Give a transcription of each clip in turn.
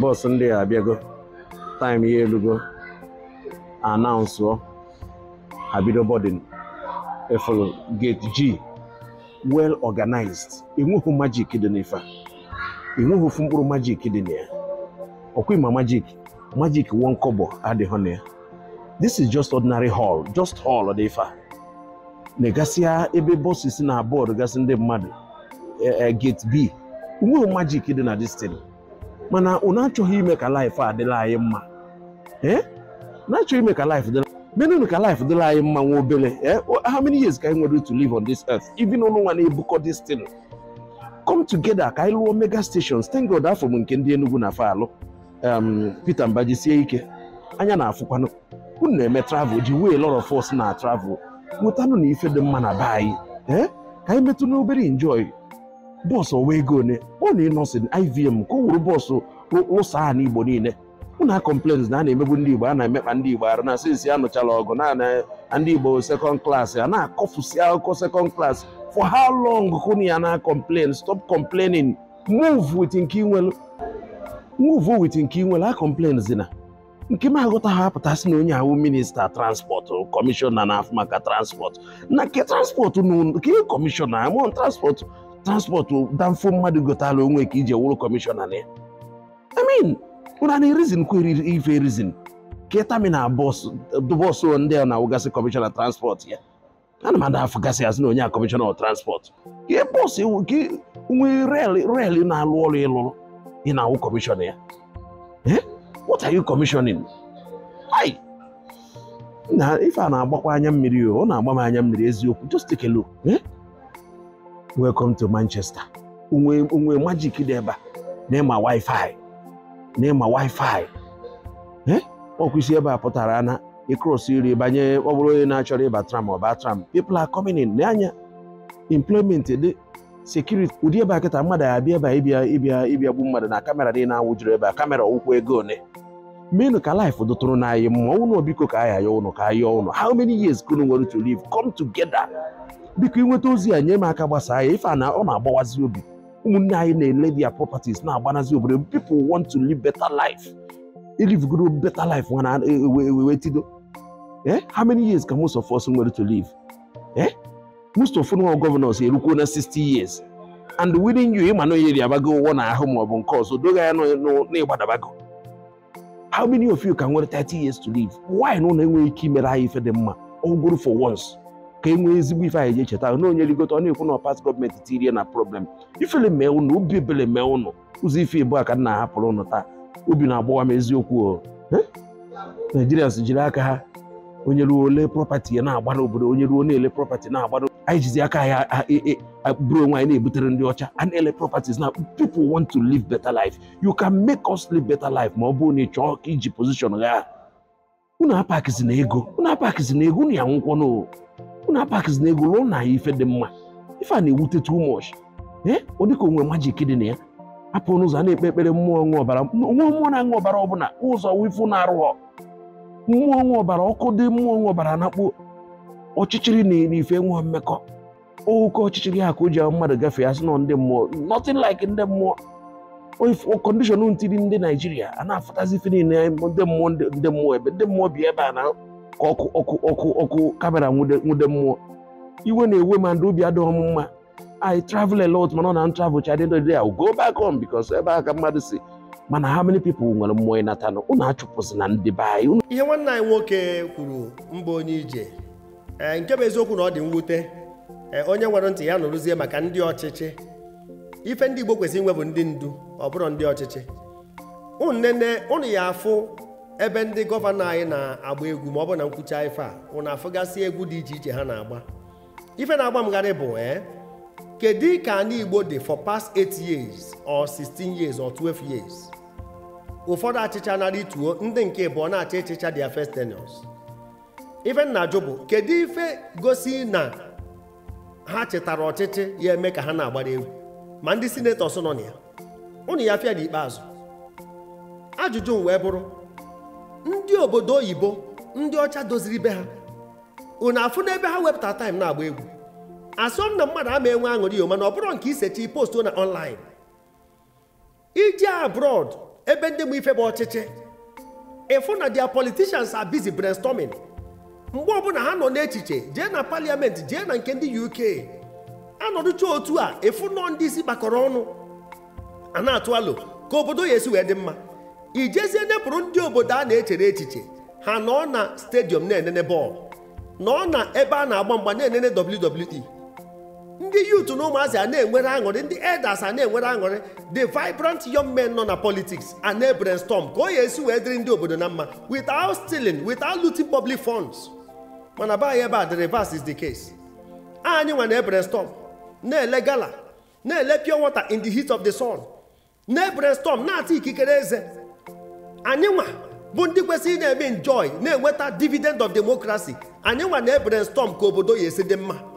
Bọs ndị a abịago taịm ya elugo anaụnsụọ ha bido bọdịn efolo gate ji well organized enweghị majik dị n'ife enweghị ofu mkpụrụ majik dị na ya ọkwa ịma majik majik wọn kọbọ adịghị na ya this is just ordinary hall just hall dị ife a na-egasịa ebe bọsụ si na bọọdụ gasị ndị mmadụ e, e, gate b enweghị majik dị na destin mana unu achọghị ime ka laịf a dịla anyị mma na-achọghị ime ka laịf dịla menụnụ ka laịf dịla anyị mma nwa obere ee how many years ka anyị nwere to live on this earth even ụlọ nwa na-ebukọ this thing come together ka anyị lụọ mega stations thank God afọ m nke ndị Enugu na fa alụ um, Peter Mbaji sie ike anya na-afụkwanụ unu na-eme travel ji wee lọrọ fọs na travel mụtanụ na ife dị mma na be anyị ka anyị metụ n'obere enjoy bọọsụ ọwa ego one ọ na ịnọsị ivm ka ọ wuru bọọsụ ụsa a n'igbo niile ụna kọmplens na a na-emegbu ndị igbo a na-emekpa ndị igbo arụ na sinsi anụchala ọgụ na ndị igbo sekọnd klaasị a na-akọfusi akụkọ sekọnd klaasị for how long kụnụ ya na kọmplen stop complaining move with nke inwelu move with nke inwelu a na nke m aghọta ha apụtasị na onye ahụ minista transport kọmishọna na-afụ maka transport na ke transport na kọmishọna amụọ transport transpọtụ danfo mmadụ gotala onwe ka iji ewuru kọmishọna na ya amin ụra na rizin kweri ife rizin ka taminal bọs ndị a na-awụgasị kọmishọna transpọtụ ya ana m ada afụgasị azụ na onye a kọmishọna transpọtụ ihe bọs e nwe rel na-alụ ọrụ ịlụrụ ị na-awụ kọmishọna ya eh? what are you commissioning ai ife a na-agbakwa anya mmiri ọ na-agba m anya mmiri eziokwu just take a look eh? welcome to Manchester onwe magic dị ebe a na-ema wifi na-ema wifi eh? ebe a pụtara na ịkrosi iri banye ọ bụrụ onye na-achọrọ ịba tram ọba tram people are coming in n'anya dị security ụdị ebe a kịta mmadụ abịa ebe a ịbịa ịbịa gbu mmadụ na kamera na anwụjuru ebe a kamera ụkwụ ego one menu ka life dotụrụ n'anyị ma ụnụ biko ka anyị ayọ ụnụ ka ayọ ụnụ how many years ka ụnụ nwere to live come together biko ịnweta ozi a nye m aka gbasaa ya ife a na ọ na-agbawazi obi ụmụnne anyị na-ele their properties na-agbanazi obodo people want to live better life ilivgoro better life nwana ewe e, tido eh how many years ka most of us nwere to live eh most of our governors erukwuo na 60 years and within you ịma na onye ri abago ụwọ na ahụ maọbụ nke ọzọ doga ya n'ịgbadabago how many of you ka nwere 30 years to live why na ụlọ enweghị ike imere anyị ife dị mma ogoro for once ka e nwee ezigbo ife anyị ga-echeta na onye rigota ọ na-ekwu na past gọọmenti tirie na problem ifele mee ụnụ obi ebele mee ụnụ ụzọ ife ebu a ka m na-ahapụrụ ụnụ taa obi na-agbawa m eziokwu naijirians jiri aka ha onye ruo ole prọpati ya na-agbara obodo onye ruo na-ele prọpati na-agbara anyị jizi aka anyị e, e, bụrụ onwe anyị na-ebutere ndị ọcha a na-ele properties na people want to live better life you can make us live better life ma ọ bụrụ na ị chọọ ka iji position gha unu apakizi na ego unu apakizi na ego unu ya nwụkwọ unu apakizi na ego ruo na ife dị mma ife a na-ewute too much ee ọ dịka onwe majik dị na ya apụ n'ụzọ a na-ekpe ekpere mmụọ ṅụ ọbara mmụọ mmụọ na-aṅụ ọbara ọbụla ụzọ wifu na-arụghọ mmụọ nwe ọbara ọkụ dị mmụọ nwe ọbara anakpo ọchịchịrị na ife nwe mmekọ ụkọ ọchịchịrị ha ka o ji mmadụ gafee asị nọ ndị mmụọ nothing like ndị mmụọ kọndishọn ntiri ndị naijiria a na-afụtazi ife niile ndị mmụọ ndị mmụọ ebe ndị mmụọ bi ebe a na ka ọkụ ọkụ ọkụ ọkụ kamera nwude mmụọ iwe na-ewe ma ndị obi adịghị mma I travel a lot mana ọ na travel chadị ndị go back home because ebe a ka mmadụ si mana how many people nwere mmụọ ịnatanụ unu achụpụzina ndị be anyị ihe nwanne anyị nwoke kwuru mba onye ije e, nke bụ eziokwu na ọ dị mwute e, onye nwere ntị ya nụrụzie maka ndị ọchịchị ife ndị Igbo kwesịrị inwe bụ ndị ndu ọ bụrụ ndị ọchịchị nne unu ya afụ ebe ndị gọvanọ anyị na-agba egwu ma ọ bụ na nkwucha ife a unu afụgasị egwu dị iche iche ha na-agba ife na-agba mgharị bụ ee kedu ka anyị Igbo dị for past 8 years or 16 years or 12 years ụfọdụ achịcha narị ituo ndị nke bụ ọ na-acha ịchịcha dia ya ife nna jụ bụ kedu ife gosi na ha chetara ọchịchị ya eme ka ha na-agbara egwu ma ndị sinetọs nọ na ya ụnụ ya fịa n'ikpeazụ ajụjụ m wee bụrụ ndị obodo oyibo ndị ọcha doziri be ha unu afụ n'ebe ha wepụta taim na-agba egwu asọm na mmadụ ama enwe aṅụrị mana ọ bụrụ nke isechi post na online ije abroad ebe ndị mụ ife bụ ọchịchị ịfụ na their politicians are busy brainstorming mgbe ọbụla ha nọ n'echiche jee na parliament jee na nke ndị uk anọdụcha otu a ịfụ nọ ndị isi gbakọrọ ọnụ a na-atụ alo ka obodo ya esi wee dị mma ijezie nyepụrụ ndị obodo a na-echere echiche ha nọ na stadium na-enene bọọlụ nọ na ebe a na-agba mgba na-enene WWE ndị yut na ụmụazị a na-enwere aṅụrị ndị elders a na-enwere aṅụrị the vibrant young men nọ na politics a na-brainstorm ka o ya esi wee dịrị ndị obodo na mma without stealing without looting public funds mana be anyị ebe a the reverse is the case anyị nwa na storm na-ele gala na-ele pure water in the heat of the sun na brainstorm na-ata ikikere eze anyị nwa bụ ndị kwesịrị na-eme enjoy na-enweta dividend of democracy anyị nwa na storm ka obodo ya esi dị mma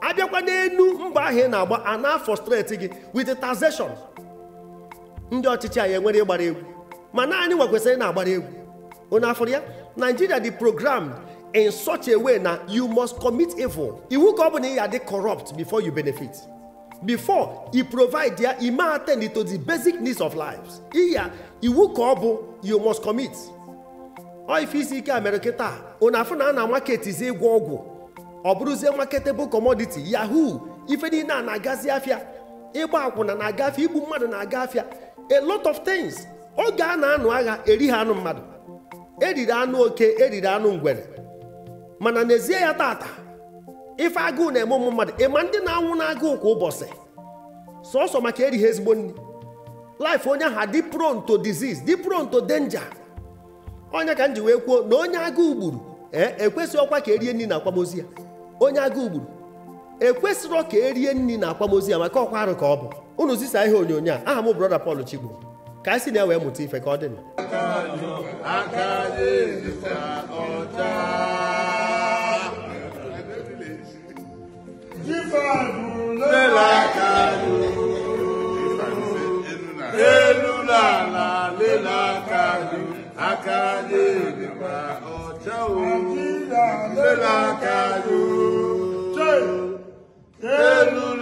abịakwa n'elu mba ahụ ị na-agba ana na-afọ streti gị with taxation ndị ọchịchị anyị enwere ịgbara egwu ma naanị nwekwesịrị na-agbara egwu onye afọrọ ya Nigeria dị program in such a way na you must commit evil iwu ka ọ bụ na ị ya dị corrupt before you benefit before i provide ya ime attend to the basic needs of lives iya iwu ka ọ bụ you must commit ọ ife isi ike a mere kịta onye afọ na a na-amaketizi ịgwọ ọgwụ ọ bụrụzie marketable commodity yahoo ife niile a na-agazi afịa ịgba akwụna na-agafe igbu mmadụ na-aga afịa a lot of things oge a na-anụ agha erighi anụ mmadụ eriri anụ oke eriri anụ ngwere mana n'ezie ya tata ife agụụ na-eme ụmụ mmadụ ịma ndị na-anwụ n'agụụ kwa ụbọchị sọsọ maka erighi ezigbo nri life onye ahụ dị pronto to disease dị pronto danger onye ka m ji wee kwuo na onye agụụ gburu ee ekwesịghị ọkwa ka erie nri na akwamozu ya onye agụ ugburu ekwesịrọ ka erie nri na akwamozu ya maka ọkwa arụ ka ọ bụ unu zisa ihe onyonyo a aha m brọda Pọl Chigbo ka anyị si na ewee mụta ife ka ọ dị na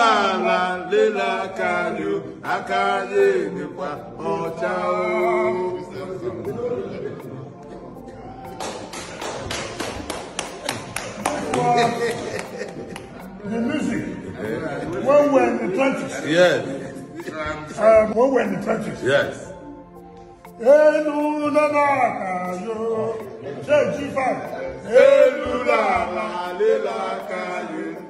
ala lela kanyo akaye nikwa ọcha o. The music. When we're in the trenches. Yes. Um, when we're in the trenches. Yes. Elu nana kayo, ṣe jí fa. Elu nana lela kayo.